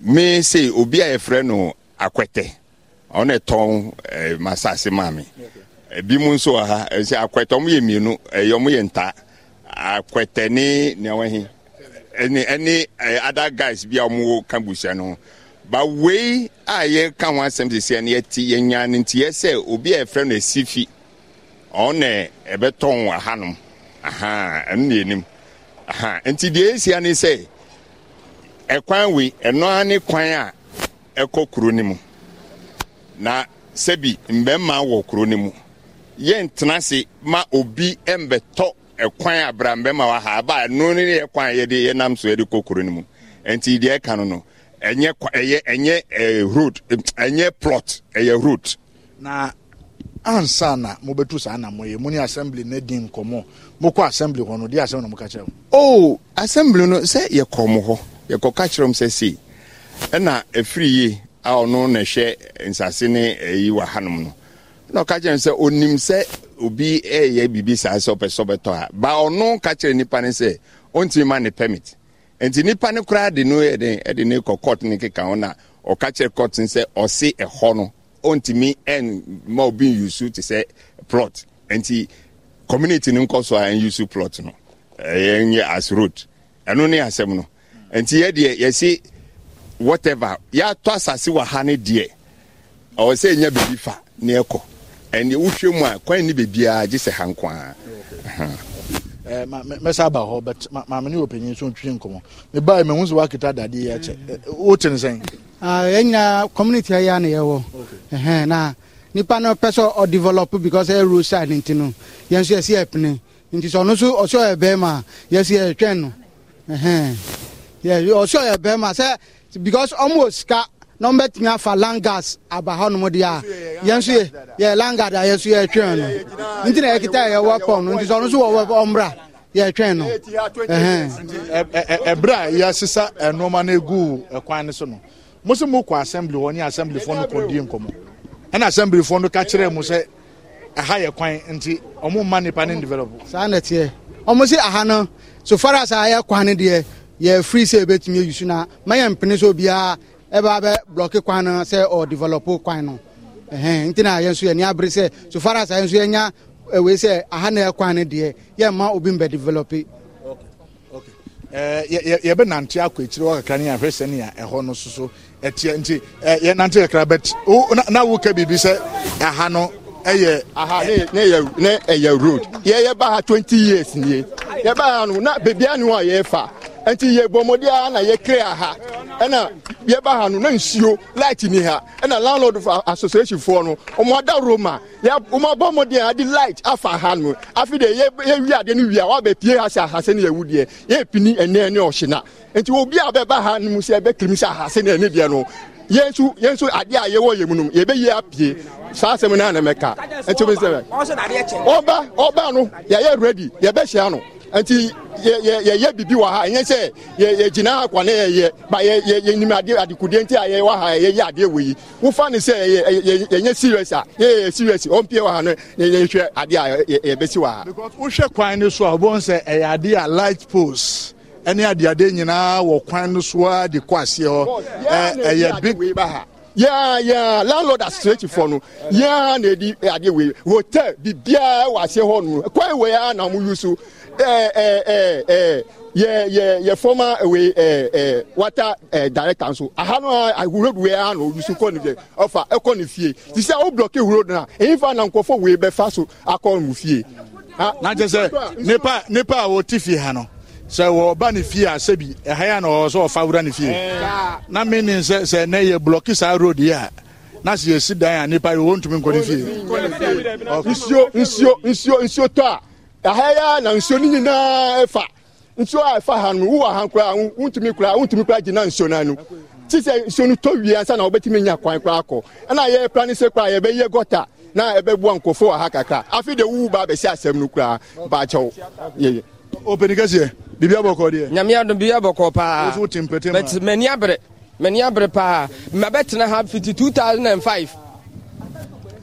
me se obi a yɛfrɛ no akwɛtɛ ɔne tɔn eh, masase maa mi ebi mu nso wɔ ha ɛsɛ akwɛtɛ ɔmo yɛ mmienu ɛyɛ ɔmo yɛ nta akwɛtɛ ne nea wɔn ɛne ɛne ɛɛ eh, other guys bi a ɔmo ka busua no ba wei a yɛka ho asɛm sisi ɛne yɛti yɛnya ne nti yɛsɛ obi a yɛfrɛ no esifi ɔne ɛbɛtɔn wɔ ha nom ɛno na yɛnim nti deɛ esia ne sɛ. ɛkwan wei ɛno ara ne kwan a ɛkɔ kuro no mu na sɛbi mmarima wɔ kuro no mu yɛntena se ma obi mbɛtɔ ɛkwan abrambɛma wɔ ha aba ɛno ne yɛ kwan a yɛde yɛnam so yɛde kɔ kuro no mu nti deɛ ɛka no no ɛnyɛ ɛyɛ ɛnyɛ ɛɛ road ɛnyɛ plot ɛyɛ road. na ansa na mo bɛtu saa na mo yɛ mo ni assembly ne di nkɔmɔ mo kɔ assembly hɔ no di assembly na mo ka kyerɛ o. Oh, assembly no sɛ yɛ hɔ. yɛkɔka kyerɛ m sɛ sei ɛna ɛfiri yi a ɔno na ɛhwɛ nsase ne ɛyi eh, wɔ hanom no na ɔka kyerɛ m sɛ onim sɛ obi ɛyɛ biribi saa sɛ ɔpɛ sɛ ɔbɛtɔ a ba ɔno ka kyerɛ nipa ne sɛ ɔntumi ma ne permit nti nipa ne koraa de no ɛde ɛde ne kɔ court ne keka ho na ɔka kyerɛ court ne sɛ ɔse ɛhɔ no ɔntumi ɛn ma obi yusu te sɛ plot nti community ne nkɔ so a ɛn plot no ɛyɛ nyɛ as road ɛno ne asɛm no nti yɛ deɛ yɛsi whatever yɛatɔ asase wɔ ha ne deɛ ɔwɔ sɛ ɛnya baabi fa ne ɛkɔ ɛne wohwɛ mu a kwan ne baabiaa gye sɛ ha nkoaa mɛsa aba hɔ ma maame o panyin so ntwi nkɔmmɔ mebae mahu dadeɛ mm. community a na nipa pɛ because road side yɛn si nti ɔno ɛtwɛn no ɔsɛ ɔyɛ bɛrima sɛ because ɔmo sika na ɔmo bɛtumi afa langas aba hɔnom deɛ a yɛn nso yɛ yɛ langard a yɛn nso yɛ twɛn no nti na yɛkita yɛ wɔ pɔn no nti sɛ ɔno nso wɔ ɔmbra yɛ twɛn no. ɛbrɛ a yɛasesa nneɛma no egu kwan no so no mo sɛ mo kɔ assembly hɔ ne assembly foɔ no kɔ die nkɔmɔ ɛna assembly foɔ no ka kyerɛ mo sɛ ɛha eh, yɛ kwan nti ɔmo mma nipa ne develop. saa na teɛ ɔmo si aha no so far as a yɛ kwan no deɛ. yɛfiri sɛ ɛbɛtumi ayusu na ma yɛ mpene sɛ obiaa ɛbaa e bɛ blɔke kwan no sɛ ɔdevelop kwan no nti na yɛn nso yɛni abere sɛ so sa as yɛn nso yɛnya ɛwei e sɛ aha na ɛkwan e. eh, no deɛ yɛmma obi mbɛ develop yɛbɛ nante akɔ akyire hɔ kakra ne ahwɛ sɛ nea ɛhɔ no soso ɛteɛ nti yɛnante kakra but na woka biribi sɛ aha no ɛyɛ ɛyɛ road yɛyɛba ha 20 years nie yɛba ha no na bebia ne hɔ a yɛfa nti yɛ bɔmmɔde ara na yɛkre aha ɛna yɛba ha no na nsuo light ni ha ɛna landlord association foɔ no ɔmo ada roma ɔmo abɔ mmɔden a de light afa ha no afi de yɛwi adeɛ no wia wabɛ pie ha sɛ ahase ne yɛwu deɛ yɛpini ɛnɛ ne ɔhyena nti obi a bɛba ha no mu sɛ ɛbɛkirim sɛ ahase ne ɛne deɛ no yẹn nso yẹn nso adeɛ a yɛwɔ yɛn mu no yɛ bɛ yɛ apie saa asɛm naa na mɛka nti o bɛ sɛ ɔba ɔba no yɛ yɛ ready yɛ bɛ hyia no. nti yɛyɛ biribi wɔ ha ɛnyɛ sɛ yɛgyina ha kwa ne yɛyɛ ba yɛnim adekudeɛ nti a yɛwɔ ha yɛyɛ adeɛ wɔ yi wofa ne sɛ yɛnyɛ serious a yɛyɛ serious ɔmpie wɔ ha no yɛhwɛ adeɛ a yɛbɛsi wɔ ha wohwɛ kwan no so a sɛ ɛyɛ adeɛ a light ɛne adeade nyinaa wɔ kwan e, e no a de kɔ aseɛ hɔ ɛyɛ na edi adeɛ wei hotel biribiaa wɔ aseɛ hɔ no kwan wei a na mo yu so Eh, eh, eh, yɛ former wei water director nso aha no a ah, ah, road wei a na ɔyusu kɔ ne ɔfa ɛkɔ ne fie ti sɛ wo blɔke road no a ɛyifa na nkɔfɔ wei fa so akɔ mu fie na kyɛ sɛ nipa nipa a wɔte fie ha no sɛ wɔba ne fie a sɛbi ɛha a na ɔwɔ sɛ ɔfa wura ne fie na meaning sɛ sɛ nɛ yɛ blɔke saa road yi a na sɛ yɛsi dan a nipa yi wɔntumi nkɔ ne fie nsuo nsuo nsuo nsuo tɔ a aha ya na nsuo no nyinaa ɛfa nsuo a ɛfa ha no wowɔ ha koraa wontumi koraa wontumi koraa gyina nsuo no ano ti sɛ nsuo no tɔ wie ansa na wobɛtumi nya kwan koraa kɔ ɛna yɛyɛ pra ne sɛ koraa yɛbɛyɛ gɔta na ɛbɛboa nkɔfo wɔ ha kakra afei de wowu ba bɛsi asɛm no koraa baakyɛw yɛyɛ ɔpɛni kɛseɛ biribi abɔkɔ deɛ nyame adom biribi abɔkɔ paa m'ani abere m'ani abere paa mabɛtena ha fiti 2005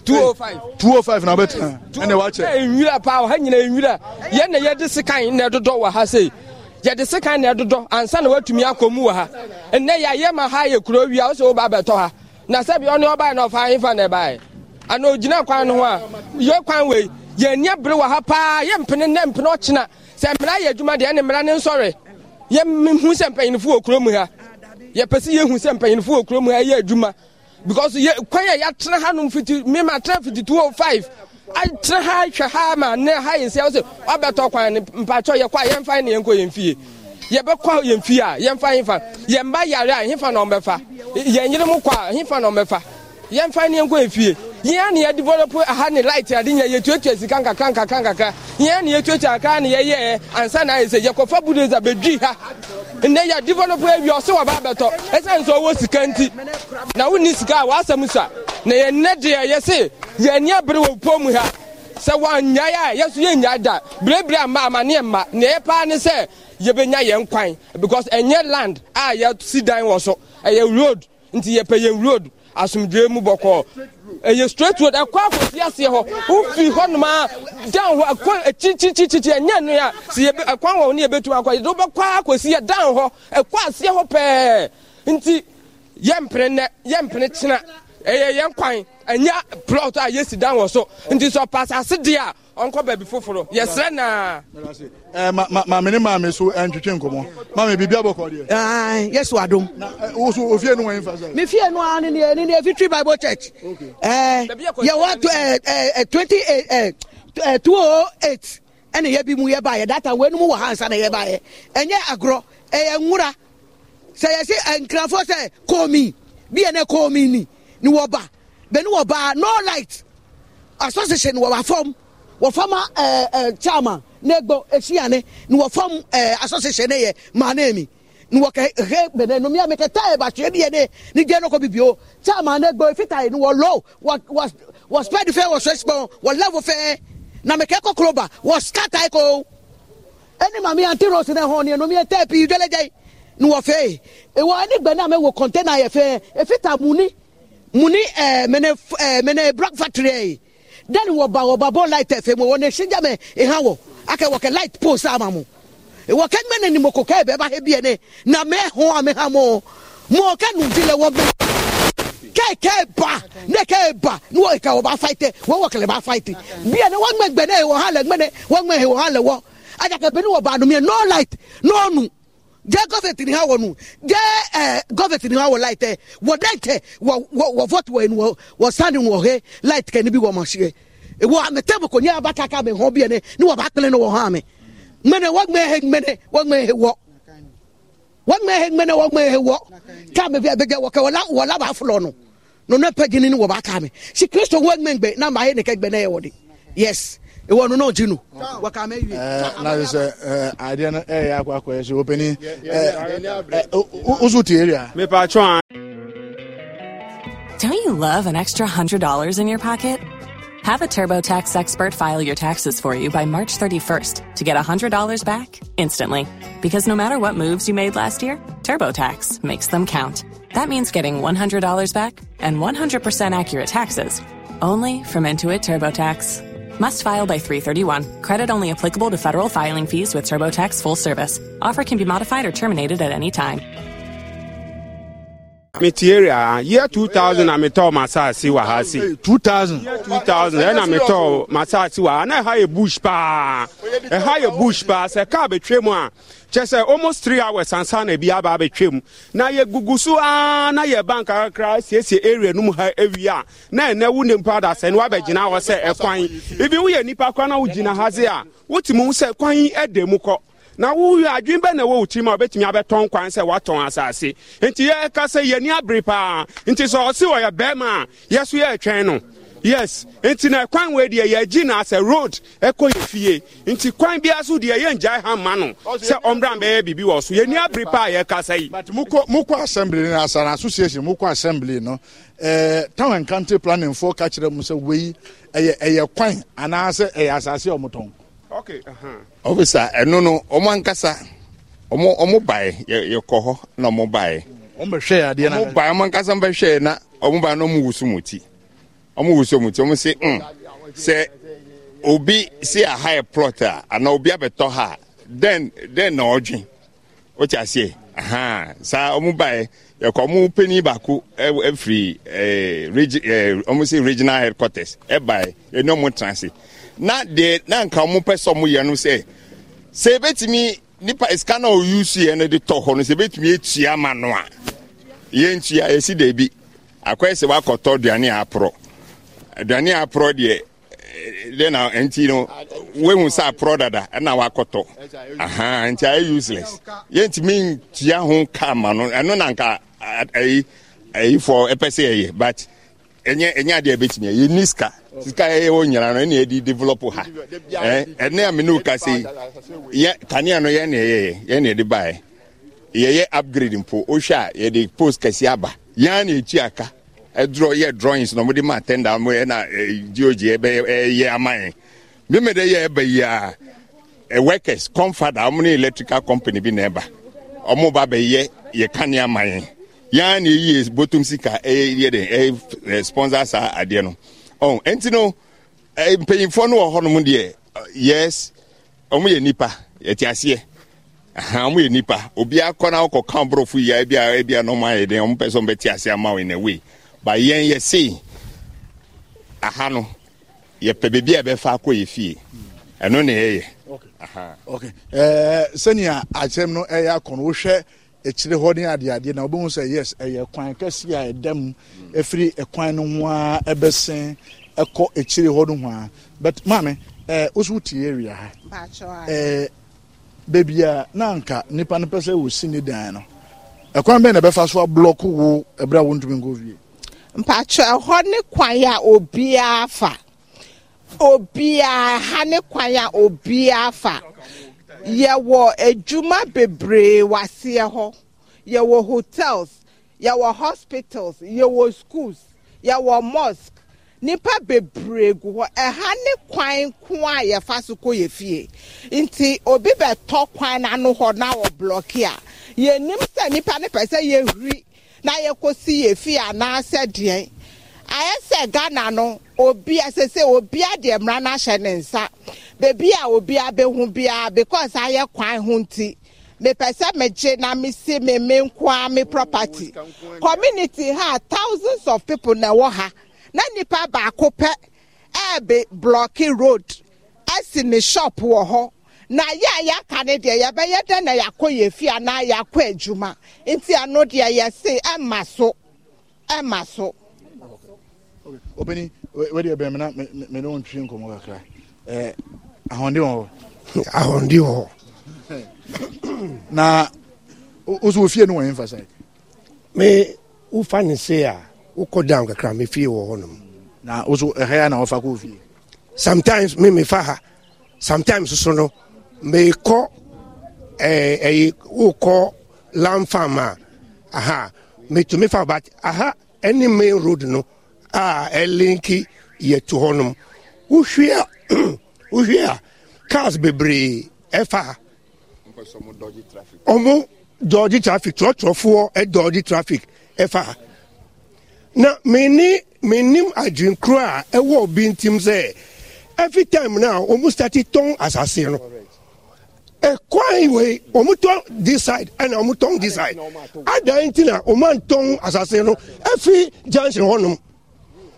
205 205 na wobɛtena oh ɛne wakyɛ nwira paa ha nyina nwira yɛn na yɛde sekan na ɛdodɔ wɔ ha sei yɛde sekan na ɛdodɔ ansa na woatumi akɔ mu wɔ ha ɛnnɛ yɛayɛ ma ha ye kuro wia wo sɛ woba bɛtɔ ha na sɛbi ɔne ɔbae na ɔfa hefa na ɛbae ana ogyina kwan no ho a yɛ kwan wei yɛnni bere wɔ ha paa yɛmpene nɛ mpene ɔkyena sɛ mmara yɛ adwuma deɛ ɛne mmara ne nsɔre yɛmehu sɛ mpanyinifo wɔ kuro mu ha yɛpɛ sɛ yɛhu sɛ mpanyinifo wɔ kuro mu ha ɛyɛ adwuma because yɛ kwan a yɛatena hanom fiti mema tena fiti two oh five atena ha hwɛ ha ma ne ha yɛ nsia sɛ wabɛtɔ kwan ne mpakyɛ yɛkɔ a yɛmfa ne yɛnkɔ yɛn fie yɛbɛkɔ yɛn fie a yɛmfa hefa yɛn ba yare a hefa na ɔmbɛfa yɛn yere mu kɔ a hefa na ɔmbɛfa yɛmfa ne yɛnkɔ yɛn fie yɛn ne yɛdevelop aha ne light ade nyɛ yɛtuatua sika nkakra nkakra nkakra yɛn ne yɛtuatua akra ne yɛyɛɛ ansa na ayɛ sɛ yɛkɔfa budosa bɛdwii ha nnɛ yɛ develop awie ɔsɛ wɔba abɛtɔ ɛsiane sɛ ɔwɔ sika nti na wonni sika a wɔasɛm so a na yɛnnɛ deɛ yɛse yɛni abere wɔ pɔ mu ha sɛ wɔnnyae a yɛso yɛnnyae da berebere ama amanneɛ mma neɛ yɛ paa ne sɛ yɛbɛnya yɛn kwan because ɛnyɛ land a yɛsi dan wɔ so ɛyɛ road nti yɛpɛ yɛn road asomdwoe mu bɔkɔɔ ɛyɛ straight road ɛkɔ akɔsi aseɛ hɔ wofi hɔ noma dan hɔ ɛkɔ akyirikyirikyirikyiri ɛnyɛ no a sɛ ɛkwan wɔ wo ne yɛbɛtumi akɔ yɛde wobɛkɔ akɔsi dan hɔ ɛkɔ aseɛ hɔ pɛɛ nti yɛmpene nɛ yɛmpene kyena ɛyɛ yɛn kwan ɛnyɛ plot a yɛsi dan wɔ so nti sɛ ɔpa asase deɛ a ɔnkɔ baabi foforo yɛsrɛ naa eh, maame so ɛntwetwe eh, nkɔmmɔ maame biribi abɔkɔ deɛ yɛso adom woso ofie no wɔn mfa sɛ mefie no a ne ne bible church yɛwɔ 28 208 ɛne yɛbi mu yɛbaeɛ data wei no mu wɔ ha na yɛbaeɛ ɛnyɛ agorɔ ɛyɛ nwora sɛ yɛse eh, nkrafoɔ sɛ kɔɔmi bi ɛnɛ kɔɔmi ni ni wɔba bɛni wɔba no light association wɔba fam wɔfam ɛɛ eh, ɛɛ eh, chairman eh, ne gbɔ esiane ni wɔfam ɛɛ association ne yɛ maa ne mi ni wɔkɛ he bɛnɛ nomi ami kɛ taa ɛba tiɛ deɛ ne ni diɛ ne bibi o chairman ne gbɔ efita yi ni wɔ low wɔ wɔ wɔ spɛdi fɛ wɔ sɛsipɔn wɔ level fɛ namikɛ kɔkɔrɔ ba wɔ skata ko ɛni maami anti rose ne hɔn ni nomi yɛ tɛ pi jɔlɛjɛ yi ni wɔ fɛ yi ewɔ ɛni gbɛ ne amɛ wɔ kɔntɛna yɛ fɛ efita mu ni. Muni ni ɛɛ mɛnɛ ɛɛ mɛnɛ black factory yɛ dani wɔ ba wɔ ba bɔ light fm wɔ ne sinja mɛ ihan wɔ akɛ wɔ kɛ light pole sa ma mu wɔ kɛ mɛ ne ni mo ko kɛ bɛɛ ba he bie ne na mɛ hɔn a mɛ ha mɔ mɔ kɛ nu ti lɛ wɔ bɛ kɛ kɛ ba ne kɛ ba ne wɔ kɛ wɔ ba fight wɔ wɔ kɛlɛ ba fight bie ne wɔ ŋmɛ ne wɔ hã lɛ ŋmɛ ne wɔ ŋmɛ he wɔ hã lɛ wɔ ajakɛ pe ne wɔ ba nu miɛ no light no nu jẹ gọfẹtì ni ha wọ nu jẹ ẹ gọfẹtì ni ha wọ láì tẹ wọ dẹ tẹ wọ wọ wọ vọtù wọ ẹnu wọ wọ sanni wọ he láì tẹ níbi wọ ọmọ ṣe wọ àmì tẹ́bù kò ní abata ká mi hàn bíyẹn ni ni wọ́n bá pẹ́lẹ́ ní wọ́n hàn mi mẹ́nẹ̀ wọ́n gbẹ́ he mẹ́nẹ̀ wọ́n gbẹ́ he wọ́ wọ́n gbẹ́ he mẹ́nẹ̀ wọ́n gbẹ́ he wọ́ ká mi bí abẹ́jẹ́ wọ́ kẹ́ wọ́n lábàá fúlọ̀ nù nínú pẹ́jì ni wọ́n bá ká mi si kristu wọ́n gbẹ́ gbẹ́ náà máa yẹ nìkẹ́ gbẹ́ náà yẹ wọ́ de yes. Okay. nu yà eh, eh, eh, Don't you love an extra $100 in your pocket? Have a TurboTax expert file your taxes for you by March 31st to get $100 back instantly. Because no matter what moves you made last year, TurboTax makes them count. That means getting $100 back and 100% accurate taxes only from Intuit TurboTax. Must file by 331. Credit only applicable to federal filing fees with TurboTax full service. Offer can be modified or terminated at any time. Material ah, year 2000 na metɔ masaasi wa ha se. 2000. 2000 ɛna metɔ masaasi wa ha na ɛha yɛ bush paa ɛha yɛ bush paa sɛ kaa bɛ twɛ mu a. kyɛ uh, almost three hours ansa na bi aba abɛtwam na yɛgugu so aa na yɛ bank kakra siesie area nu mu ha awie na ɛnɛ wo nipa da sɛ ne hɔ sɛ ɛkwan eh, ibi woyɛ nipa kora na wogyina ha se a mu sɛ kwan ɛda eh, mu kɔ na woyɛ adwene bɛ na ɛwɔ wo tirim a wobɛtumi abɛtɔn kwan sɛ woatɔn asase enti yɛka sɛ yɛni abiri paa nti sɛ ɔse ɔyɛ bɛrima a yɛ so yɛɛtwɛn no yes nti na kwan wei deɛ yɛgyi na sɛ road ɛkɔ yɛ fie nti kwan biara so deɛ yɛngyae ha ma no sɛ ɔmmra mbɛyɛ biribi wɔ so yɛni abere pa a yɛkasa yi mokɔ assembly no asana association mokɔ assembly no eh, town and county planning foɔ kakyere kyerɛ mu sɛ wei ɛyɛ kwan anaasɛ ɛyɛ asase ɔmotɔn uh-huh. ofisa ɛno no ɔmo ankasa ɔmo bae yɛkɔ hɔ na ɔmo bae ɔmo bɛhwɛ adeɛ na ɔmo bae ɔmo ankasa mbɛhwɛ na ɔmo bae na ɔmo wusu mo ti ɔmo wusu ɔmo ti ɔmo hmm, se mm sɛ obi si aha yɛ plot a ana obi abɛtɔ ha den den na ɔdwi ɔkye aseɛ ahan saa ɔmo ba yɛ yɛkɔ ɔmo panyin baako ɛfiri e, e ɛɛ e, regi ɛɛ ɔmo se regional headquarters ɛba yɛ ɛni ɔmo tena se na deɛ na nka ɔmo pɛ sɛ ɔmo yɛ no sɛ sɛ ebetumi nipa sika na oyusu yɛ no de tɔ hɔ no sɛ ebetumi etua ama no a yɛntua yɛsi dɛbi akɔyɛ sɛ wakɔtɔ aduane aporɔ aduane a aporɔ deɛ eh, dɛ na nti no wehu sɛ aporɔ dada ɛna wakɔtɔ aha nti ayɛ useless yɛntumi ntua ho kaa ma no ɛno na nka ayi ayifoɔ ɛpɛ sɛ yɛyɛ but ɛnyɛ ɛnyɛ adeɛ bɛtumi yɛ ni sika sika yɛ wɔ nyina no ɛna yɛde develop ha ɛɛ ɛne a mene ka se yɛ kanea no yɛne yɛyɛ yɛne yɛde baɛ yɛyɛ upgrade mpo wohwɛ a yɛde post kɛseɛ aba yɛn na ɛtua ka yɛ drawings na ma tenda mu ɛna geogy ɛyɛ ama yɛn bi yɛ ɛba yi a workers comfada ɔmo ne electrical company bi na ɛba ba bɛ yɛ kane ama yɛn eh. yaa ni eyi botom sika ɛyɛ eh, yɛ de ɛyɛ eh, sponsor saa adeɛ no ɔn oh, ɛnti no mpanyinfoɔ no wɔ hɔnom deɛ yes ɔmo yɛ nipa aseɛ yɛ nipa na ɔkɔ kan borɔfo yi na ba yɛn yɛ yɛse aha no yɛpɛ baabi a yɛbɛfa akɔ yɛ fie ɛno na ɛyɛ eh, sɛnea akyerɛm no ɛyɛ akɔ no wohwɛ akyire hɔ ne adeadeɛ na wobɛhu sɛ yes ɛyɛ kwan kɛse a ɛda mu ɛfiri ɛkwan no ho a ɛbɛsen ɛkɔ akyire hɔ no ho a but maame eh, woso wotie awia ha baabi eh, a na anka nnipa no pɛ sɛ wɔsi ne dan no ɛkwan bɛn na ɛbɛfa so ablɔko wo ɛberɛ a wontumi nkɔ fie mpakyɛ ɛhɔ ne kwan a obiara fa obiara ha ne kwan a obiara fa yɛwɔ adwuma bebree waseɛ hɔ yɛwɔ hotels yɛwɔ hospitals yɛwɔ schools yɛwɔ mosque nipa bebree gu hɔ ɛha ne kwan ko a yɛfa so kɔ yɛ fie nti obi bɛtɔ kwan n'ano hɔ na wɔ blɔki a yɛnim sɛ nipa ne pɛ sɛ yɛhuri. na yɛkɔsi yɛ fi anaasɛ deɛn ayɛ sɛ ghana no obi asese obi adị mmara na ahyɛ ne nsa beebi a obi abɛhu bia because ayɛ kwan hụ nti mepɛ sɛ megye na mesi me me nkoa me property community ha thousands of people na ɛwɔ ha na nipa baako pɛ ɛɛbe blɔki road ɛsi ne shop wɔ hɔ na yɛ a yɛaka ne deɛ yɛbɛyɛ dɛn na yɛakɔ yɛ fi anaa yɛakɔ adwuma nti ano deɛ yɛse ɛma so ɛma so obɛni wɛde ɛbɛn mi na mɛ ne wo ntwi nkɔmɔ kakra ɛɛ eh, ahɔnde wɔ hɔ ahɔnde wɔ hɔ na o so ofie no wɔn yɛn fasa yi me wofa ne se a wokɔ down kakra me fie wɔ hɔ nom na o so ɛhɛ ya na wɔfa k'o fie sometimes me me fa ha sometimes so no mɛ kɔ ɛɛ ɛyi o aha mɛ fa ba aha ɛni main road no a ɛlinki yɛ tu hɔnom wohwea wohwea cars bebree ɛfa ɔmo dɔɔgye traffic trɔtrɔfoɔ ɛdɔɔgye traffic ɛfa na mene menim adwenkuro a ɛwɔ obi ntim sɛ every time na ɔmo start tɔn asase no kwan wei wɔn tɔn this side ɛna wɔn tɔn this side adan ti na wɔn antɔn asase no efi junction hɔnom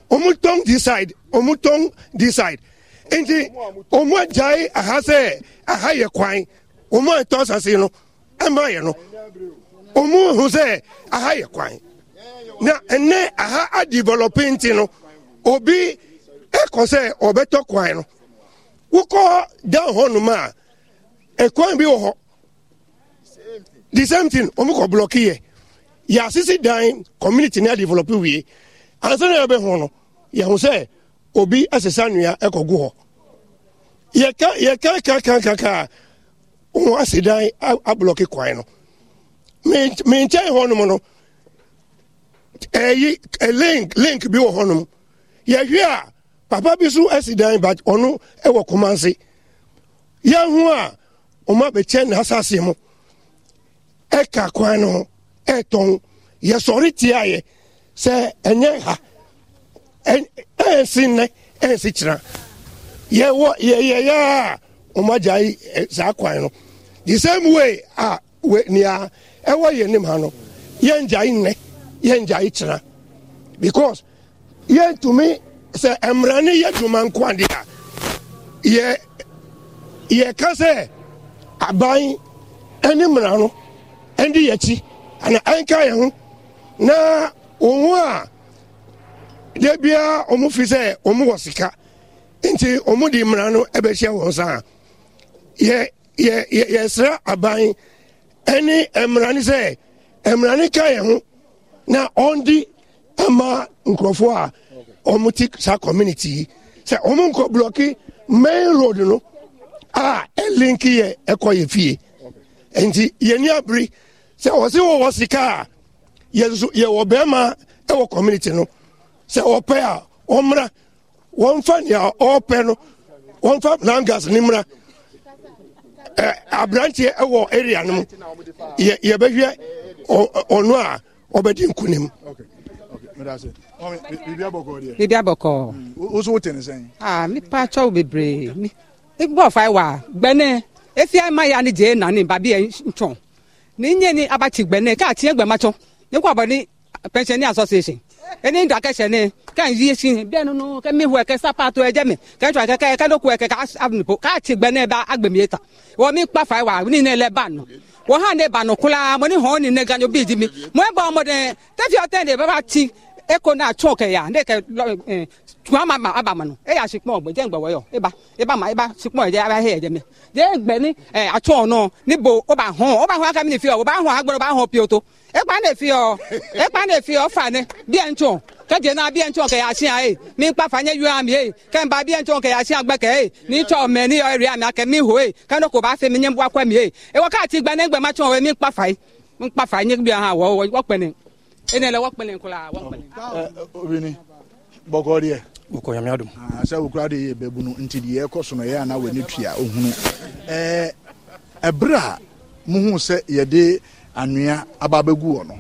wɔn tɔn this side wɔn tɔn this side nti wɔn agyae aha sɛ aha yɛ kwan wɔn antɔn asase no ɛma yɛ no wɔn ho sɛ aha yɛ kwan na ɛnɛ aha adeveloping ti no obi ɛkɔ sɛ ɔbɛtɔ kwan no wokɔ down hɔnom a. ɛkwan bi wɔ hɔ the same thing wɔn kɔ blɔki yɛ yɛasisi dan community na develop wie ansa na yɛbɛho no yɛho sɛ obi asesa nnua ɛkɔgu hɔ yɛka yɛka kakakaka wɔn asi dan ablɔki kwan no menkyɛn hɔnom no ɛyi ɛ link link bi wɔ hɔnom yɛhwɛ a papa bi so asi dan but ɔno ɛwɔ kɔmanse yɛho a. ɔmo abɛkyɛ n'asase mu ɛka kwan no ho ɛtɔn yɛsɔre tia yɛ sɛ ɛnyɛ ha ɛnsi nnɛ ɛnsi kyerɛ yɛwɔ yɛyɛyɛ a ɔmo agya yi saa kwan no the same way a we nea ɛwɔ e yɛn nim ha no yɛn gya yi nnɛ yɛn gya yi kyerɛ because yɛn tumi sɛ e mmerani yɛ dwuma nkwade a yɛ yɛ ka aban ne mmerano de yɛ akyi ana ɛnka yɛn ho na wɔn a da biara wɔn fi sɛ wɔn wɔ sika nti wɔn de mmara no bɛhyia wɔn sa yɛ yɛ yɛ yɛsrɛ aban ne mmara no sɛ mmara no ka yɛn ho na ɔndi ama nkurɔfoɔ a wɔn ti saa community yi sɛ wɔn nkɔ blɔki main road no. a ɛlinki yɛ ɛkɔ yɛ fie nti yɛni abiri sɛ wɔsi wɔwɔ sika a yɛnso yɛwɔ bɛrima ɛwɔ community no sɛ ɔpɛ a ɔmra wɔnfa nea ɔpɛ no wɔnfa langas ne mra ɛ aberanteɛ ɛwɔ area no mu yɛ yɛbɛhwɛ ɔno a ɔbɛdi nkunim. biribi abɔkɔɔ deɛ. biribi abɔkɔɔ. Mm, wosowo tɛ ne sɛn. aa ah, mi pa atwa wo bebree. igbo fai wa gbene efia ma ya ni je na ni babi e nchon ni nye ni aba abachi gbene ka ti egbe macho ni kwa ni pension association eni nda kẹsẹ ni ka yi si bẹẹ nínú kẹmi hu ẹkẹ sápàtó ẹjẹ mi kẹjọ akẹkẹ ka ẹkẹ káàbùnìpọ káàtì gbẹnẹ bá agbèmí yẹta wọn mi kpa fàá wà ní ilẹ̀ bánu wọn hàn ní bánu kúlá mo ní hàn ní nẹgànjọ bíi di mi mo ẹ e bọ ọmọdé tẹfí ọtẹ ní bàbá ti eko na atụ oke ya ndị ke tụọ e, ama ma aba manụ e ya sikpọ ọgbọ jee mgbe wọyọ ịba ịba ma ịba sikpọ eje aba ihe eje me jee mgbe ni e, atụ ọnụ n'ibo ọba ahụ ọba ahụ aka m na-efi ọba ahụ agbọrọ ọba ahụ pi ụtụ ịkpa na-efi ọ ịkpa na-efi ọ fani bịa ntụ kẹjẹ náà bí ẹ ń tún ọkẹ yà sí àyè mi ń pa fàyẹ yọ àmì yẹ kẹmbà bí ẹ ń tún ọkẹ yà sí àgbẹkẹ yẹ ní tọ mẹ ní ọrẹ àmì akẹ mi mi ní bọ akọ mi yẹ ewọ káàtì gbanẹgbẹ má mi ń pa fàyẹ mi ń pa fàyẹ ní bí ene le wɔkpɛlɛ nkura wɔkpɛlɛ. ɛ obinrin bɔkɔ deɛ. wokɔ nyamea dom. sɛ wokura de yɛ bɛɛ bunu nti deɛ ɛkɔ so no yɛ ana wɔ eh, eh, ne tua ohunu ɛɛ ɛbrɛ a muhu sɛ yɛde anwea aba abɛgu wɔ no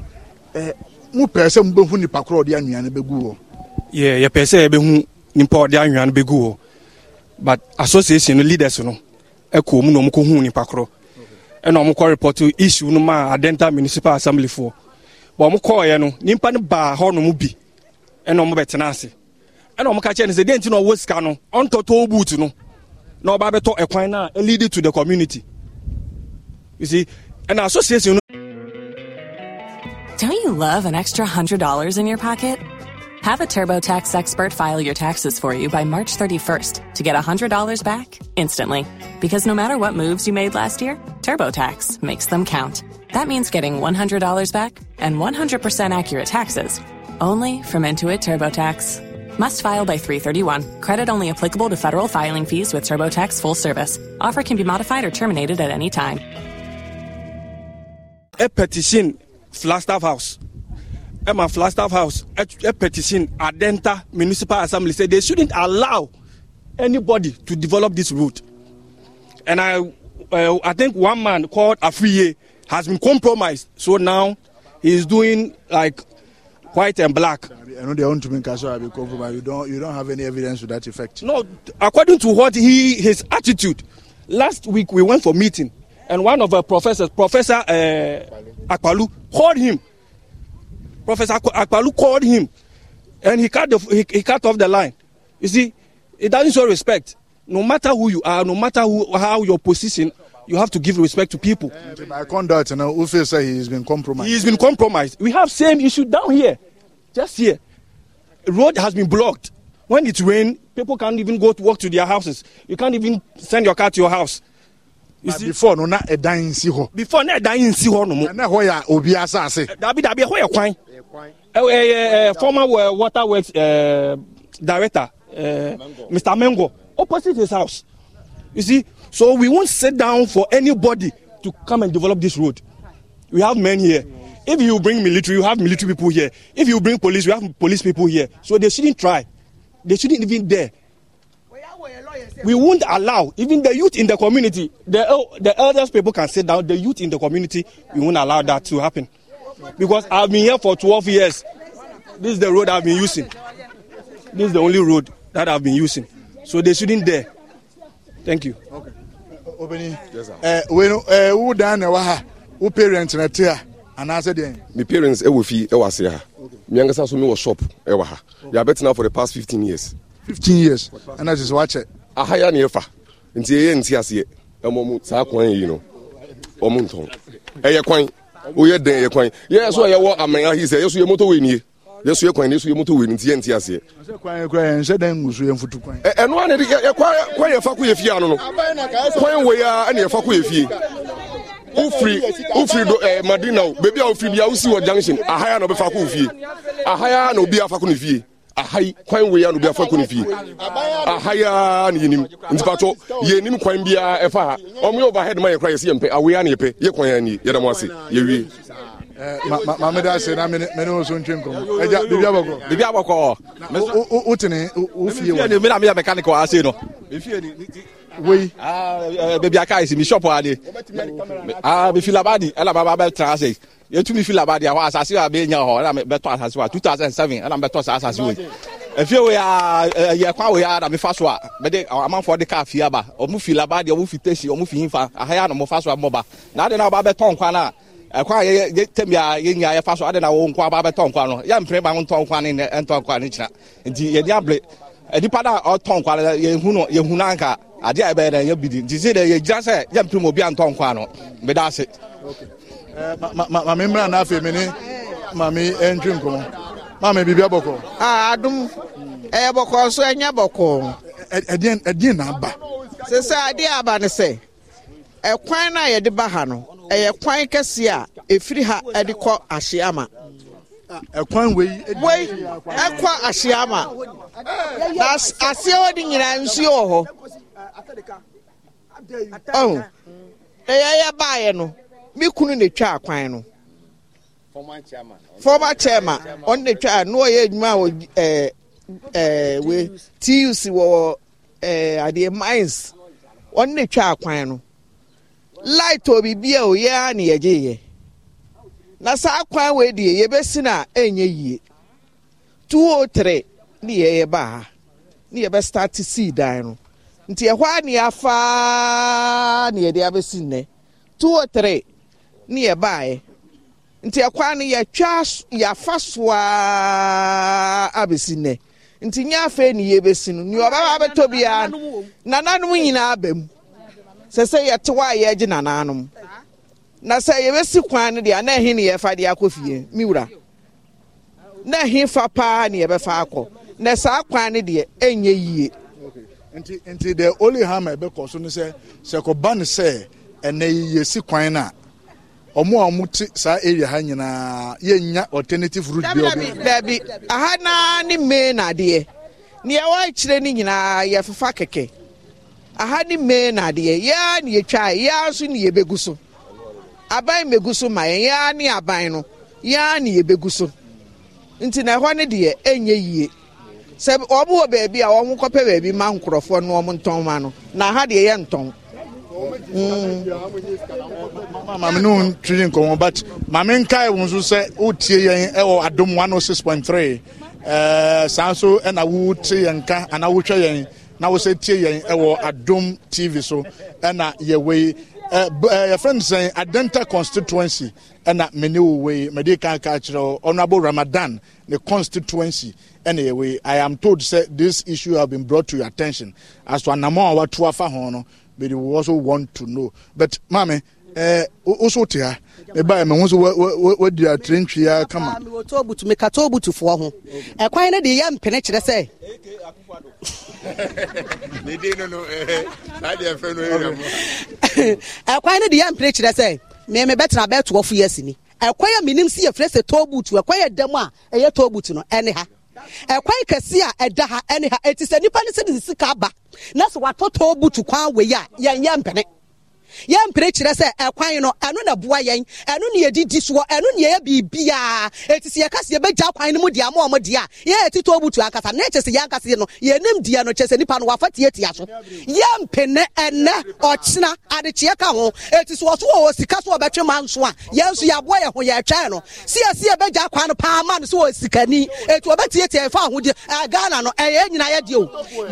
ɛɛ mo pɛɛ sɛ mo bɛhu nipa korɔ ɔde anwea no bɛgu wɔ. yɛ yɛpɛɛ sɛ yɛbɛhu nipa ɔde anwea no bɛgu wɔ but association no leaders no ɛkɔ e mu na ɔmo kɔ hu nipa korɔ ɛna ɔmo kɔ report issue no ma adenta municipal assembly foɔ. wɔn kɔɔɛ no nipa no baa hɔnom bi ɛna wɔn bɛtena ase ɛna wɔn ka kyerɛ no sɛ deɛ nti na ɔwɔ sika no ɔntɔtɔ boot no na ɔba abɛtɔ ɛkwan na ɛlead to the community you see ɛna association no. don't you love an extra hundred dollars in your pocket. Have a TurboTax expert file your taxes for you by March 31st to get a $100 back instantly. Because no matter what moves you made last year, TurboTax makes them count. That means getting $100 back and 100% accurate taxes only from Intuit TurboTax. Must file by 331. Credit only applicable to federal filing fees with TurboTax full service. Offer can be modified or terminated at any time. A petition, Flagstaff House. Emma Flagstaff House, a petition, Adenta Municipal Assembly said they shouldn't allow anybody to develop this route. And I, uh, I think one man called Afriye has been compromised. So now he's doing like white and black. I know they want to make Kasora be compromised. You don't, you don't have any evidence to that effect. No, according to what he, his attitude. Last week we went for meeting, and one of our professors, Professor uh, Akpalu, called him. Professor Akpalu called him, and he cut the, he, he cut off the line. You see, it doesn't show respect. No matter who you are, no matter who, how your position you have to give respect to people. My conduct, you know, Ufe said he's been compromised. He's been compromised. We have same issue down here, just here. Road has been blocked. When it rain, people can't even go to work to their houses. You can't even send your car to your house. You see, before no na ɛdan nsi hɔ. before na ɛdan nsi no nomu. Na ho ya obi asase. Eh, dabi dabi ɛhɔ yɛ kwan. ɛɛ ɛɛ eh, eh, former water works uh, director uh, mr mengo opposite his house you see So we won't sit down for anybody to come and develop this road. We have men here. If you bring military, you have military people here. If you bring police, you have police people here. So they shouldn't try. They shouldn't even dare. We won't allow even the youth in the community, the, the elders people can sit down, the youth in the community, we won't allow that to happen. Because I've been here for 12 years. This is the road I've been using. This is the only road that I've been using. So they shouldn't dare thank you. okay obìnrin ẹ wẹ́n ẹ wú dan na ẹwà ha wú parent na ti ha anaasẹ deɛ. mi parents ɛwɔ fi ɛwɔ ase ha mi ankasa so mi wɔ shop ɛwɔ ha yà bɛ tena for the past fifteen years. fifteen years ɛna sisi wakyɛ. aha ya ni efa nti eye nti aseɛ ɛmɔ mu saa kwan yi no ɔmu ntɔn ɛyɛ kwan oyɛ den ɛyɛ kwan yɛ yɛ so ɛyɛ wɔ amanya yi sɛ yɛ so yɛ moto wɛ nie yɛsua kwan ne yɛsua moto wei no nti yɛnte aseɛ ɛno ane kwan yɛfa kɔ yɛ fie ano no kwan wei a ɛne yɛfa kɔ yɛ fie wofiri wofiri do ɛɛ madina o beebi a wofiri bi a wosi wɔ junction ahaya na ɔbɛfa kɔ wɔ fie ahaya na obi afa kɔ ne fie ahai kwan wei a na obi afa kɔ ne fie ahaya na yɛnim ntipatɔ yɛnim kwan biara ɛfa ha ɔmo yɛ overhead ma yɛ kora yɛsi yɛn pɛ awei a na yɛpɛ yɛ kwan yɛ ani yɛda mo ase yɛwie. Eh, maame da ase na mene mene nso ntwe nkɔmɔ ɛgya bibi abɔkɔ. bibi abɔkɔ. o o tini o fie wa. mi na mi yɛ mechanical ase no. wei. beebi aka esi mi shop wa de. mi ah, fi labadi ɛna baba bɛ tena ase yɛtumi fi labadi awɔ asase wa bɛ nya hɔ ɛna bɛ tɔ asase wa two thousand seven ɛna bɛ tɔ sa asase wa efie wo yaa ɛyɛ eh, kwan wo yaa na mi fa so a mɛ de amanfoɔ de kaa fie aba ɔmu fi labadi ɔmu fi tesi ɔmu fi yin fa ahaya na ɔmu fa so a mɔba na adi na ɔba bɛ tɔn kwan ɛkwa a yɛtɛm a yɛnya yɛfa so ade na wo nkwa ba bɛtɔ nkwa no yɛmpere ba ntɔ nkwa ne ɛntɔ nkwa no kyina nti yɛde abere nipa no a ɔtɔ nkwa no yɛhu no yɛhu no anka adeɛ a ɛbɛyɛ dɛ yɛ bidi nti sɛ dɛ yɛgyina sɛ yɛmpere mu obi antɔ nkwa no meda ase mame mmra no afei me ne mame ɛntwe nkɔmmɔ mame biribi abɔkɔ adom ɛyɛ bɔkɔɔ so ɛnyɛ bɔkɔɔ ɛdeɛ na aba sɛ sɛ aba ne sɛ ɛkwan no a yɛde ba ha no ɛyɛ kwan kɛse a ɛfiri ha ɛde kɔ ahyeama ɛkwan wei wei ɛkɔ ahyeama na aseɛ hɔ de nyinaa nsuo wɔ hɔ ɔho oh. na yɛyɛ baeɛ no me kunu na ɛtwa kwan no former chairman ɔno na ɛtwa no ɔyɛ adwuma a ɛɛ ɛɛ eh, eh, wei tuc wɔ ɛɛ eh, adeɛ mines ɔno na ɛtwa akwan no light obi bia o a na yɛgye yɛ na saa kwan wei deɛ yɛbɛsi na ɛnyɛ yie 203 ne yɛyɛ baa ha ne yɛbɛstart sii dan no nti ɛhɔ a ne yɛafaa ne yɛde abɛsi nnɛ 203 ne yɛbaeɛ nti ɛkwa no yɛtwa yɛafa soa abɛsi nnɛ nti nyɛ afei ne yɛbɛsi no nea ɔbɛba abɛtɔ biara nananom nyinaa mu sɛ sɛ yɛte hɔ a yɛgyina n'anom na sɛ yɛbɛsi kwan no deɛ na ɛhe ne yɛfa deɛ akɔ fie me wura na ɛhe fa paa ne yɛbɛfa akɔ na saa kwan no deɛ ɛnyɛ yie nti nti the only harm a ɛbɛkɔ so no sɛ sɛ kɔba no sɛ ɛnɛ yi yɛsi kwan no a ɔmo a ɔmo te saa area ha nyinaa yɛnya alternative route bi ɔbi dabi aha naa ne main adeɛ nea ɛwɔ akyire no nyinaa yɛfefa kɛkɛ aha ni mmee na adeɛ ya ya yɛtwa ya nso ne yɛbɛgu so aban mmɛgu so ma ya ya ne aban no yɛa na yɛbɛgu so nti na ɛhɔ ne deɛ ɛnyɛ yie sɛ wɔn wɔ baabi a kɔpɛ baabi ma nkorɔfoɔ no wɔn ntɔn ma no na aha deɛ yɛ ntɔn. Mm. maame ne but maame nkae wo nso sɛ wotie yɛn ɛwɔ adom 106.3 saa nso ɛna wote yɛn ka anaa yɛn na wɔsɛ tie yɛn ɛwɔ adom tv so ɛna yɛwɔ yi yɛfrɛ no sɛn adenta constituency ɛna mene wo wei mede ka ka kyerɛ honorable ramadan ne constituency ɛna yɛwɔ yi i am told sɛ this issue have been brought to your attention as to anamɔ a watoa fa ho no but we also want to know but maame woso te ha ma wadi atire ya kama ho ɛkwan eh, no de yɛ mpene kyerɛ sɛ eh, ɛkwan eh, no de yɛ mpene kyerɛ sɛ bɛtena bɛtoɔ fo yɛ ɛkwan a menim sɛ yɛfrɛ sɛ tobutu ɛkwan ɛda mu a ɛyɛ tobutu no ɛne ha ɛkwan kɛse a ɛda ha ɛne ha ɛti sɛ nipa no sɛ sika aba na kwan wei a mpene yɛn mpere kyerɛ sɛ ɛkwan no ɛno na boa yɛn ɛno na yɛdidi soɔ ɛno na yɛyɛ biribiaa eti si yɛka si yɛbɛgya kwan no mu deɛ ama ɔmo deɛ a yɛyɛ ti tɔɔ butu ankasa ne kyɛ sɛ yɛn ankasa no yɛnim deɛ no kyɛ sɛ nipa no wafa tietia so yɛn mpene ɛnɛ ɔkyena adekyeɛ ka ho eti so ɔso wɔ sika so ɔbɛtwe ma nso a yɛn nso yɛaboa yɛn ho yɛtwɛn no si yɛ si yɛbɛgya kwan no paa ma no so wɔ sikani eti ɔbɛtietia ɛfa ahodeɛ ɛɛ ghana no ɛyɛ nyinaa yɛ deɛ o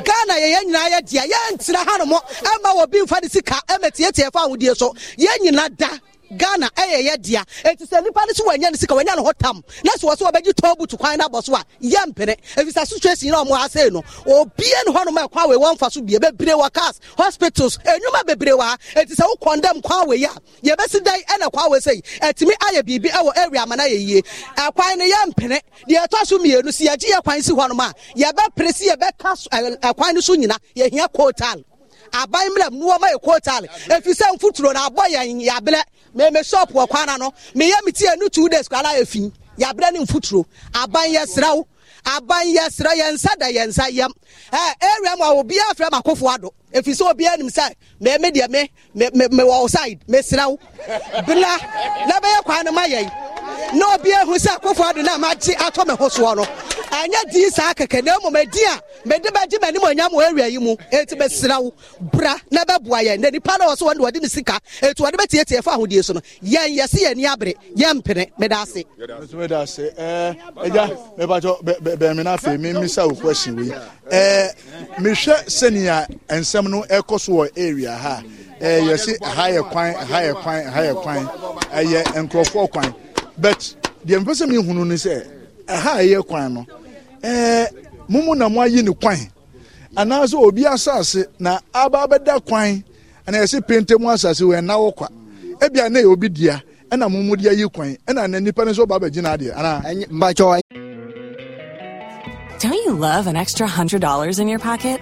ghana yɛyɛ nyinaa yɛ deɛ yɛn ntena hanom ɛma obi nfa ne sika ɛmɛ tietia deɛ fa ahodie so yɛn nyinaa da ghana ɛyɛ yɛ dea eti sɛ nipa ne so wɔnyɛ ne sika wɔnyɛ ne ho tam na so wɔsɛ wɔbɛgye tɔn butu kwan n'abɔ so a yɛ mpene efisɛ situation na wɔn ase no obie ne hɔnom ɛkwan wei wɔn fa so bie bebree wɔ cars hospitals enyuma bebree wɔ ha eti sɛ wokɔn dɛm kwan wei a yɛbɛsi dan ɛna kwan wei sɛyi ɛtumi ayɛ biribi ɛwɔ area ama na yɛ yie ɛkwan no yɛ mpene deɛ ɛtɔ so mmienu si yɛgye yɛ kwan si hɔnom a yɛbɛpere aban mmerɛ mu wɔma yɛ kootaale efi sɛ nfuturo na abɔ yɛn yabrɛ mɛmɛ shop wɔ kwana no meyɛ mi tie no two days kwala efi yabrɛ ne nfuturo aban yɛ sraw aban yɛ srɛ yɛn nsa da yɛn nsa yɛm ɛɛ eh, area mu a obi afrɛ mu akofo ado efi sɛ obi anim sɛ mɛmɛ deɛ me me me me wɔ side mɛ bila lɛbɛyɛ kwan no ma yɛn na obi ehu sɛ akofo ado na ma gye atɔ mɛ ho no ɛnyɛ dii saa kɛkɛ na mmom ɛdi a mede bɛgye m'anim onyam wɔ awia yi mu ɛti bɛsira wo bra na bɛboa yɛn na nipa no wɔ so wɔne wɔde ne sika ɛti wɔde bɛtiatia fa ahodeɛ so no yɛn yɛse yɛni abere yɛmpene meda ase meda ase ɛgya mebatɔ bɛmi no afei memisa wo question wei eh, mehwɛ sɛnea ɛnsɛm no ɛkɔ so wɔ area ha eh, yɛse ha yɛ kwan ha yɛ kwan ha yɛ kwan ɛyɛ nkurɔfoɔ kwan but deɛ mepɛ sɛ mehunu ne sɛ ɛha ɛyɛ kwan no mumu na mo ayi ne kwan anaasɛ obi asase na aba abɛda kwan ana yɛsɛ pente mu asase wɔ ɛna wɔ kwa ebi a yɛ obi dua ɛna mumu di ayi kwan ɛna na nipa ne nso ba abɛgyina adeɛ ana. mbakyɔwa. Don't you love an extra hundred dollars in your pocket?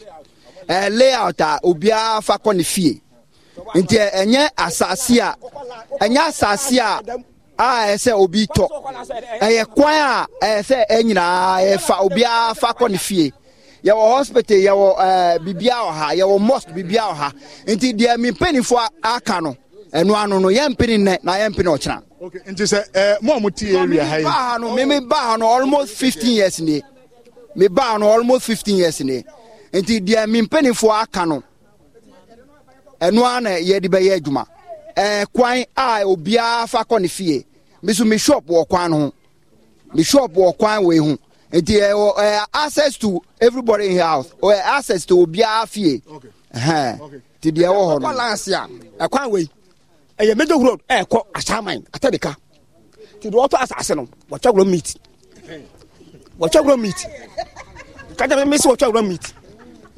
uh, layout a obiara fa kɔ ne fie nti eh, ɛnyɛ asase a ɛnyɛ asase a a ɛyɛ sɛ obi tɔ ɛyɛ kwan a ɛyɛ sɛ ɛnyinaa yɛfa obiara fa kɔ ne fie yɛwɔ hospital yɛwɔ ɛɛ eh, bibia wɔ ha yɛwɔ mosque bibia wɔ ha nti deɛ mi mpanyinfoɔ aka no ɛnu ano no yɛn mpini nnɛ na yɛn mpini ɔkyina. ok nti sɛ ɛɛ mo a mo ti area ha yi. mimi baa ha no mimi baa ha no almost fifteen years ni mi baa ha no almost fifteen years ni nti deɛ mi mpanimfoɔ aka no ɛno ara na yɛde bɛyɛ adwuma ɛɛ a obiara fa kɔ ne fie mi nso mi wɔ kwan no ho mi shop wɔ kwan wɔ ehu nti ɛwɔ ɛɛ access to everybody in house ɛɛ access to obiara fie ɛhɛn ti deɛ ɛwɔ hɔ no. ɛkɔ lansi a ɛkwan wɔ ɛyɛ major road ɛɛkɔ asaman atadika ti deɛ ɔtɔ asase no wɔtɔ agorɔ meat wɔtɔ agorɔ meat kájà mi mi sɛ wɔtɔ agorɔ meat.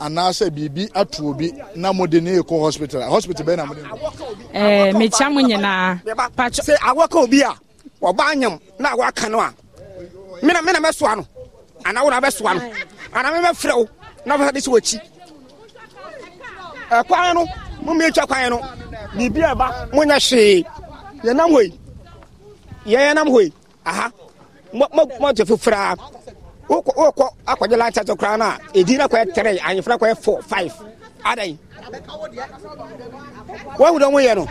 anaasɛ biribi ato obi na mode ne hospital a hospital bɛɛ na mode eh, mekyia mo nyinaa awɔka obi a ɔba anyam na awɔaka no a mena mɛsoa no anaa na bɛsoa no anaa memɛfrɛ wo na wofɛ de sɛ wɔkyi ɛkwan no momiɛtwa kwan no biribi a ɛba monyɛ hwee yɛnam hɔ yɛyɛnam aha wokɔ akɔgye lunch ato koraa no a ɛdi no kɔyɛ tre anyefra kɔyɛ fo five adan wahu dɛ moyɛ no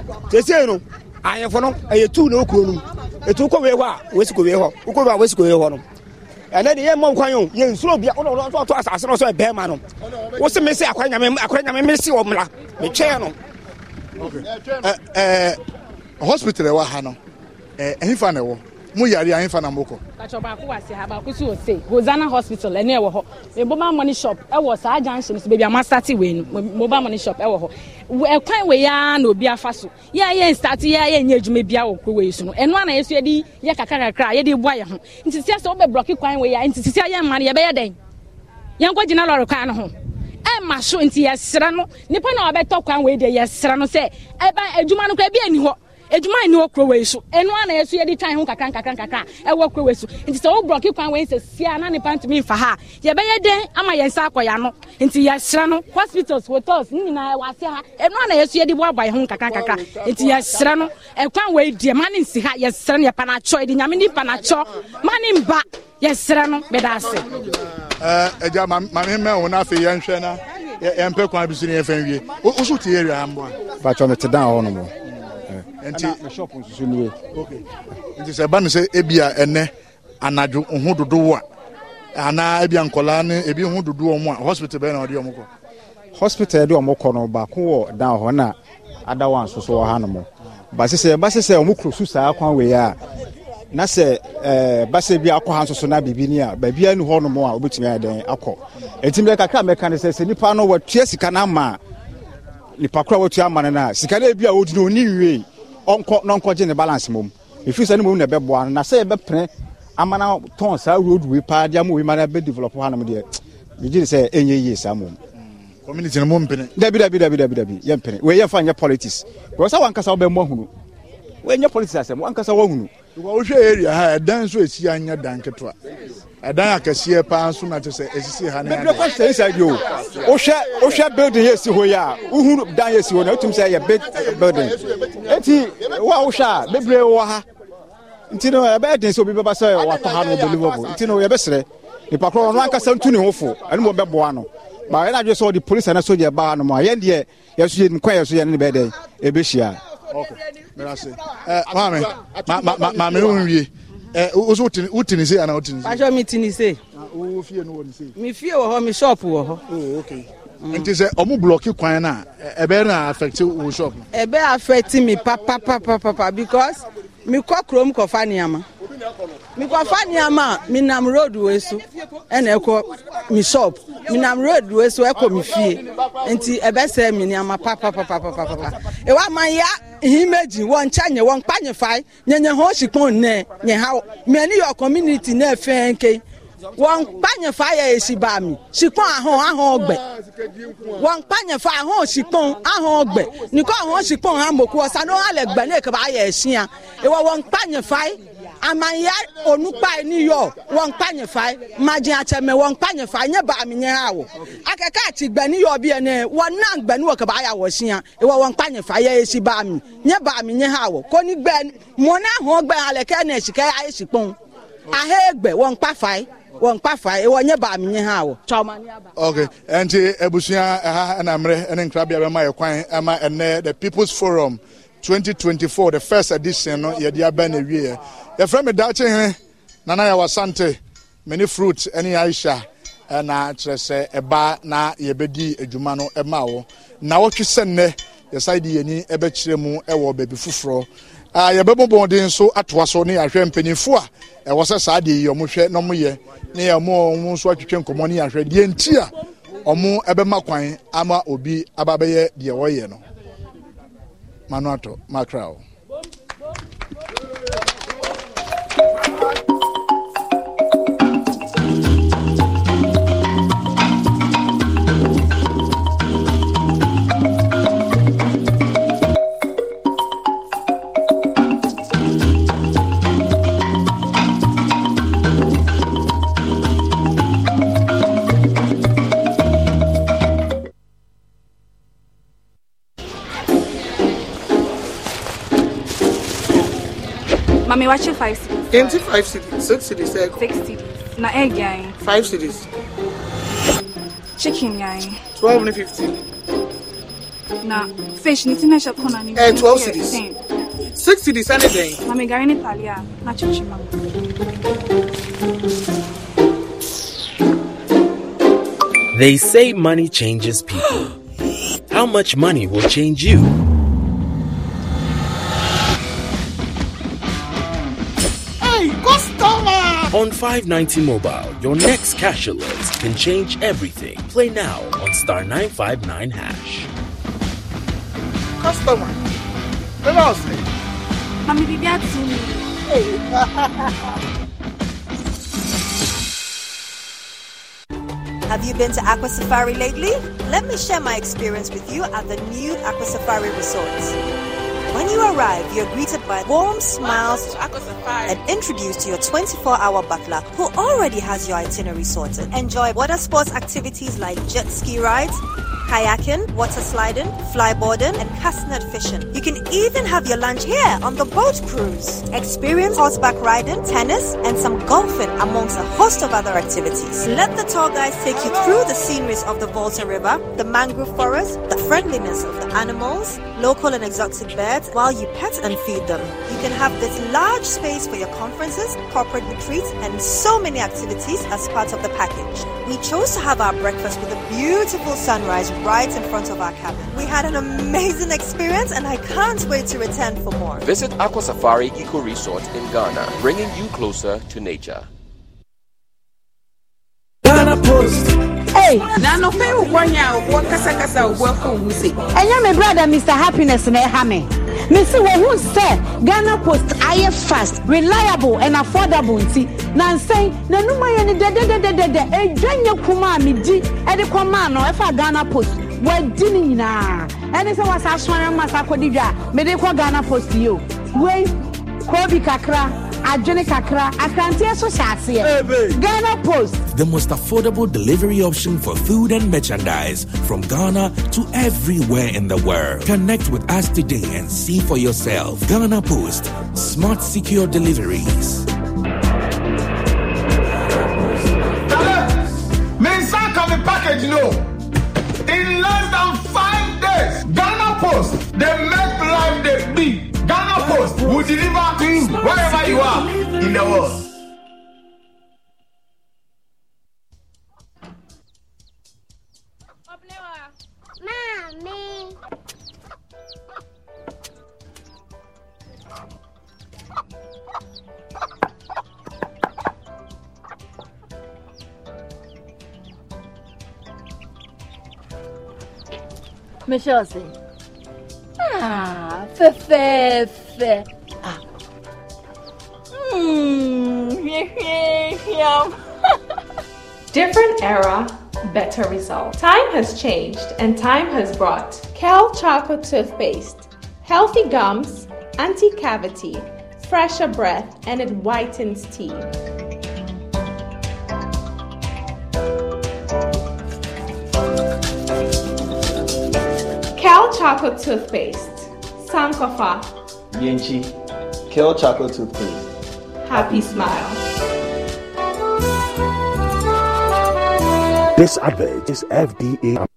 no anyefo no ɛyɛ tu na wokuro nom ɛtu wokɔ wei hɔ a wɔsi wei hɔ wokɔ wei a wɔsi wei hɔ no ɛnɛ deɛ yɛmma nkwan o yɛnsuro bia wonɔto asase no ɛbɛrima no wo se mese nyame mese wɔ metwɛɛ no hospital ɛwɔ ha no na ɛwɔ mu yare anyi fa na mo kɔ. kàtɔ baako wà sí ha baako sì wò hosanna hospital ɛni ɛwɔ hɔ mobile money shop ɛwɔ saa junction so baabi a ma start mobile money shop ɛwɔ hɔ ɛkwan wei ya na obi afa so yɛ yɛ start yɛ yɛ nyɛ adwuma bi a wɔ kuro wei so no ɛno ana yɛ so yɛ de yɛ kakra kakra yɛ de bu ayɛ ho nti sisi sɛ wɔbɛ blɔki kwan wei ya nti sisi yɛ mma no yɛ bɛyɛ dɛn yɛn kɔ gyina lɔri kwan no ho ɛma so nti yɛsrɛ no nipa na ɔbɛtɔ kwan wei deɛ yɛsrɛ no sɛ ɛba adwuma no kora ebi ani hɔ edwuma ni wɔ kuro wei so enua na yɛ so yɛde twan ho kakra nkakra nkakra ɛwɔ kuro wei so nti sɛ wobrɔke kwan wei sɛ sia na nipa ntumi mfa ha yɛbɛyɛ dɛn ama yɛn nsa akɔ yano nti yɛsrɛ no hospitals hotels ne nyinaa ɛwɔ ase ha enua na yɛ so yɛde boaboa yɛn ho nkakra nkakra nti yɛsrɛ no ɛkwan wei die mani ne nsi ha yɛsrɛ no yɛpa n'akyɔ yɛde nyame ne pa n'akyɔ ma ne mba yɛsrɛ no bɛda ase. ɛgya maame mɛ wɔn afei yɛnhwɛ na yɛmpɛ kwan bi so ne yɛfɛn wie wosow te yɛ awia mboa. patro mi te dan hɔ nti na shop nso so okay nti sɛ ba no sɛ ebia ɛnɛ anadwo ho dodoɔ a anaa ebia nkɔlaa ne ebi ho dodoɔ mu a hospital bɛyɛ na ɔde ɔmo kɔ hospital yɛde ɔmo kɔ no baako wɔ dan hɔ na adawa nso so wɔ ha nom ba sɛ ba sɛ ɔmo kuro su saa kwan wei a na sɛ ɛɛ basa bi akɔ ha nso so na biribi ni a baabi a ni hɔ nom a obetumi ayɛ dɛn akɔ etimi kakra mɛka ne sɛ sɛ nipa no wɔtua sika na ama nipa koro wɔtua ama no na sika na ebi a odi no oni nwie ɔnkɔ na ɔnkɔgye ne balance mom ɛfiri sɛ ne mom na ɛbɛboa no na sɛ yɛbɛpene ama na tɔn saa roadway paa de ama wei ma na bɛdevelop hanom deɛ megye ne sɛ ɛnyɛ yie saa mom community no mompene dabi dabi dabi dabi dabi yɛmpene wei yɛmfa nyɛ politics because sɛ wankasa wobɛmmɔ hunu wei nyɛ politics asɛm wankasa woahunu wohwɛ area ha ɛdan nso ɛsi anyɛ dan ketewa ɛdan akɛseɛ paa nso na te sɛ ɛsisi ha ne mɛbrɛ kɔ sɛ nsɛ bio wohwɛ wohwɛ building yɛsi hɔ yi a wohunu dan yɛsi hɔ na wotum sɛ yɛ big building enti wa a wohwɛ a bebree wɔ ha nti no ɛbɛyɛ den sɛ obi bɛba sɛ watɔ ha no believable nti no yɛbɛserɛ nipa korɔ ɔno ankasa ntu ne ho fo ɛne mu ɔbɛboa no ma yɛn adwe sɛ ɔde polisi ana sogya baa no mu a yɛn deɛ yɛso yɛ nkwa yɛso yɛ ne bɛɛ dɛn ɛbɛhyia mefie wɔ hɔ me shop wɔ hɔ nti sɛ ɔmo blɔki kwan no a ɛbɛyɛ no affect wo shop ɛbɛyɛ affect me papapapapa because mekɔ kurom kɔfa nneɛma mekɔfa nneɛma a menam road wei so ɛna ɛkɔ me shop menam road wei so ɛkɔ me fie nti papa papa papa papapapapapa ɛwɔ ma ya imeji wɔn nkyɛn nye wɔn kpa nye fae nye nye ho si kpɔn nɛ nye ha mɛ ni yɔ community nɛ fɛn ke wɔn kpa nye fae yɛ esi ba mi si kpɔn ahɔn ahɔn gbɛ wɔn kpa nye fae ahɔn si kpɔn ahɔn gbɛ nikɔ ahɔn si kpɔn ha mɔku ɔsa no gbɛ ne kaba ayɛ esia ewɔ wɔn kpa nye amanya onukpa ni yɔ wɔn kpa nye fa madze atsɛmɛ wɔn kpa nye fa nye baami nye awo akeke ati gbɛni yɔ bi ene wɔn nan gbɛni wɔ kaba ya wɔ siya ewɔ wɔn kpa nye fa ye esi baami nye baami nye awo ko ni gbɛ mɔna hɔn gbɛ aleke ne sike aye si kpɔn ahe gbɛ wɔn kpa fa ye wɔn kpa fa ye wɔn nye baami nye awo. ok ɛnti ebusua ɛha ɛna mmerɛ ɛne nkrabea bɛ ma yɛ kwan ɛma ɛnɛ the people's forum. 2024 the first edition no yɛde aba na wieɛ yɛfrɛ me daakye hene nana yɛwɔ sante mene fruit ɛne aisha ɛna eh, kyerɛ sɛ ɛba na yɛbɛdi adwuma no ɛma wo na wɔtwe sɛ nnɛ yɛsan de yɛni ɛbɛkyerɛ mu ɛwɔ baabi foforɔ ah, yɛbɛbɔ nso atoa so ne yɛahwɛ mpanimfoɔ a ɛwɔ sɛ saa deɛ yi ɔmo hwɛ na ɔmo yɛ ne yɛn nso atwitwe nkɔmɔ ne yɛahwɛ deɛ nti a ɔmo ɛbɛma kwan ama obi aba bɛyɛ deɛ wɔyɛ no. Manuato Macrao. me watch five cities. Empty five cities, six cities, six cities. Na egg yai. Five cities. Chicken yai. Twelve and fifteen. Na fish ni tina shop kona ni. Eh, twelve cities. Six cities and egg. Na me gari ni talia. Na chuchima. They say money changes people. How much money will change you? On 590 Mobile, your next cash alert can change everything. Play now on Star 959 Hash. Customer, tell Mommy, Have you been to Aqua Safari lately? Let me share my experience with you at the new Aqua Safari Resort. When you arrive, you're greeted by warm smiles and introduced to your 24 hour butler who already has your itinerary sorted. Enjoy water sports activities like jet ski rides kayaking, water sliding, flyboarding, and castnet fishing. You can even have your lunch here on the boat cruise. Experience horseback riding, tennis, and some golfing amongst a host of other activities. Let the tour guides take you through the sceneries of the Volta River, the mangrove forest, the friendliness of the animals, local and exotic birds, while you pet and feed them. You can have this large space for your conferences, corporate retreats, and so many activities as part of the package. We chose to have our breakfast with a beautiful sunrise right in front of our cabin. We had an amazing experience and I can't wait to return for more. Visit Aqua Safari Eco Resort in Ghana, bringing you closer to nature. Ghana Post. Hey, na no fe wo kwanya kasa kasa wo afu me brother Mr Happiness na e ha mesi wɔn ho sɛ ghana post ayɛ fast reliable and affordable nti na nsɛn n'anum ayɛ ni dɛdɛdɛdɛdɛ edwa nye kuma a mi di ɛde kɔ maa no ɛfa ghana post wɔadi ne nyinaa ɛne sɛ wɔasa asɔre ma sa akɔdi dwa a mede kɔ ghana post yi o wei kuro kakra. adwene kakra akranteɛ so hyɛ ghana post the most affordable delivery option for food and merchandise from ghana to everywhere in the world connect with us today and see for yourself ghana post smart secure deliveries package no in less than five days ghana post They make life dey big Ghana Post will deliver to you wherever you are in the world. Mommy. Michelle, see. Ah. Hmm. Different era, better result. Time has changed and time has brought Kel chocolate toothpaste, healthy gums, anti cavity, fresher breath, and it whitens teeth. Cal Chocolate Toothpaste Sankofa, Yenchi, Kale Chocolate Toothpaste. Happy Smile. This advert is FDA.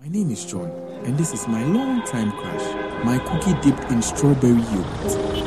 My name is John, and this is my long time crush, my cookie dipped in strawberry yogurt.